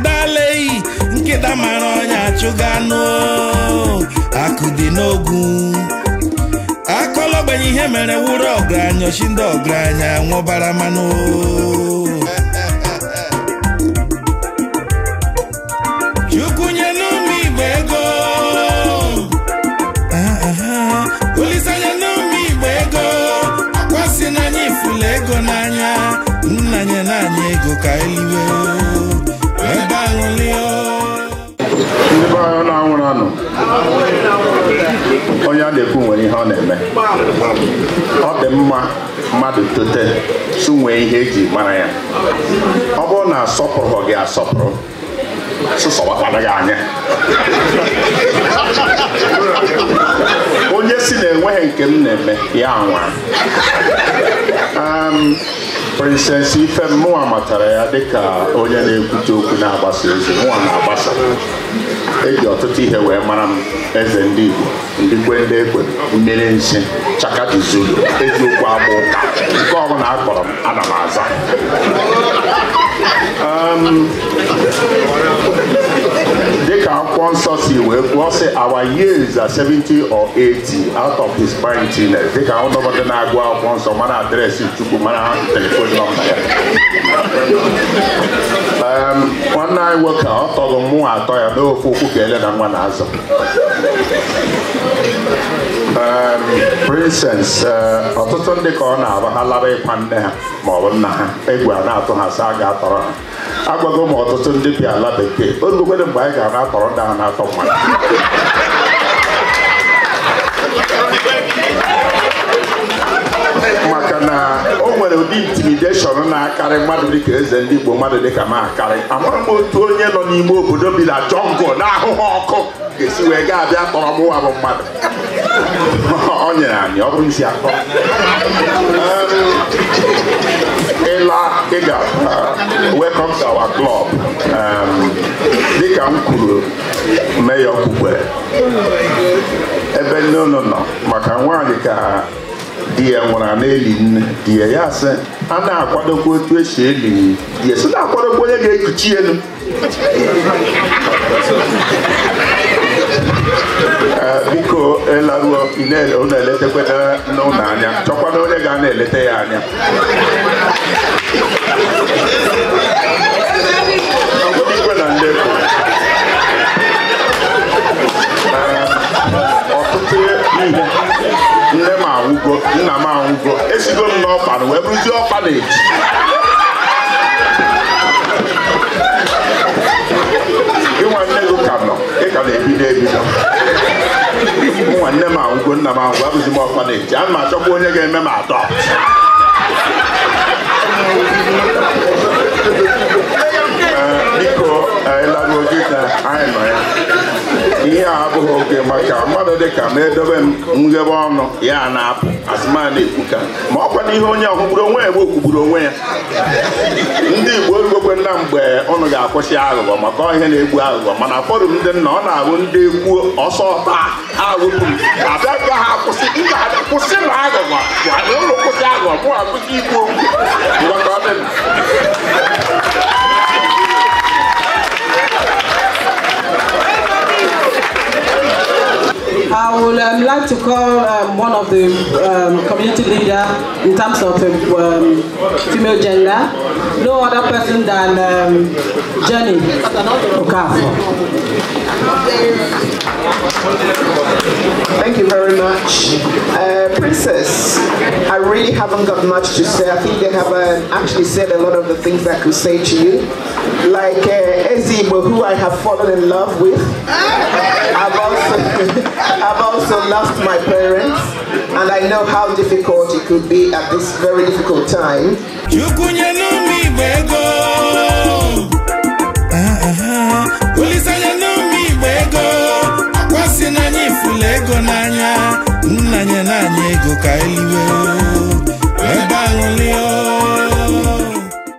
ndaleyi nkịta mara ọnya achụga anụ akụ dị n'ogu gbenye ihe mere wụrụ ọgaranya ochi ndị ọgaranya nwụbara mmanụ chukwu nye n'ụmụ igbo ego olizanya n'ụmụ igbo ego akwasị n'anya ifula ego n'anya nnanye n'anya ego ka eliwe ndị be na-anwụrụ anụ onye a na-ekwu nwere ihe ọ na-eme ọ dị mma mmadụ tote su nwee ihe eji mara ya ọ bụrụ na asọpụrụ gị asọpụrụ gị anya onye si na enweghị nke m na-eme ya anwa um, prinsesị ife mụnwa matara ya dịka onye na-ekwute okwu na-agbasa ozi mụnwa na-agbasa eji ọtụtụ ihe wee mara m eze ndị Igbo ndị ndị ekwe mmiri nsị chakati eziokwu agba ụka nke ọbụla akpọrọ m ana m aza ehm, ka akwụkwọ nsọ si wee kwuo sị our years are 70 or 80 out of his mightiness dịka ụdọbọdụ na-agụ akwụkwọ nsọ mana adreesị chukwu mana telefon nọmba ya nwanne anyị nwoke ọ tọrọ mụ atọ ya n'ofe okwu ka ele na nwa na azụ. prinses ọtụtụ ndị ka ọ na-aba ha lara ịkwa nne ha maọbụ nna ha egwu a na-atụ ha sa a ga-atọrọ ha agwago m ọtụtụ ndị bi ala bekee onukwere mgbe anyị ga-ana atọrọ ndị na-atọ mmadụ maka na o nwere ụdị intimideshọn na-akarị mmadụ dịka eze ndị Igbo mmadụ dịka m akarị amara m otu onye nọ n'ime obodo bi na jọngụ na ahụhụ ọkụ ga-esi wee gaa abịa kpọrọ mụwa bụ mmadụ ọ nyere anyị ọ bụrụ isi atọ. Ola Ega uh, welcome to our club um, dịka m kwuru meya okpukpe ebe nne unu nọ maka nwaanyị ka di ya nwụrụ na-eli nne di ya ya sị a na-akwadokwa otu esi eli di ya sị na-akwadokwa onye ga-ekuchi elu biko ịlaruo ị na-eletekwe n'ụlọ anya na onye ga na eleta ya anya ọtụtụ nne m anwụgo nna m anwụgo esigo m n'ọkpana wee bụrụzie ọkpana-eji ịnwa nne gị ka nọ ị ka na-ebido ebido ụmụ nne m ahụ nna m ahụ abụzi m ọkwa na-eji a ma achọkwa onye ga-eme m atọ biko anyị gị ka anyị nọ ya a abụghị oke maka mmadụ dịka ma edobe m nghebe ọnụ ya na-apụ asịma na-ekwuka ma ọ kwana ihe onye ọkụgburu onwe ya egbe kwugburu onwe ya ndị Igbo egbokwe nna mgbe ụnụ ga-akwụsị aghụghọ maka ihe na-egbu aghụghọ mana fọdụ ndị nna ọ na-abụ ndị kwuo ọsọ taa ha wepụ abịa ka ha kwụsị mba kwụsị na aghụghọ ụlọ kwụsị aghụghọ mụ akwụsị ikwu okwu I would um, like to call um, one of the um, community leader in terms of um, um, female gender, no other person than um, Jenny Okafor. Thank you very much. Uh, Princess, I really haven't got much to say. I think they have uh, actually said a lot of the things that could say to you. Like uh, see who I have fallen in love with. I've also, I've also lost my parents, and I know how difficult it could be at this very difficult time. Ah, ah, ah. n'anya